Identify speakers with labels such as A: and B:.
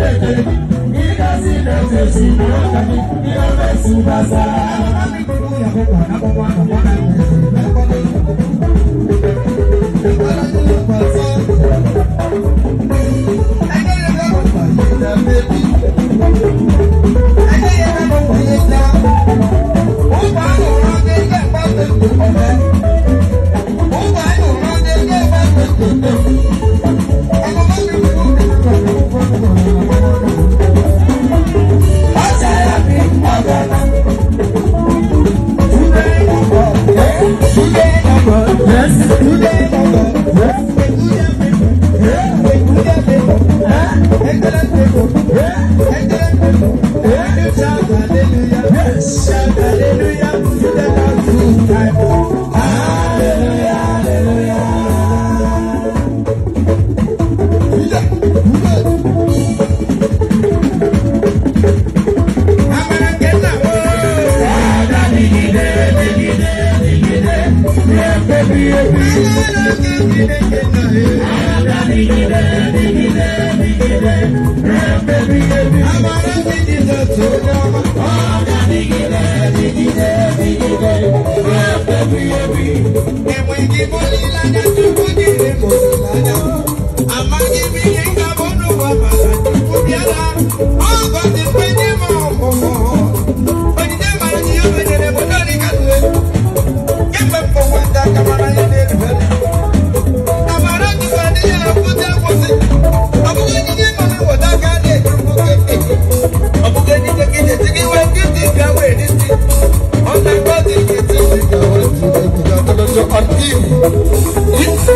A: lèdè ní kásìlẹ̀ tẹ̀sí ní ọ̀gá ní ọ̀gá ìsúnbàṣà. Yeah. Get my phone. It's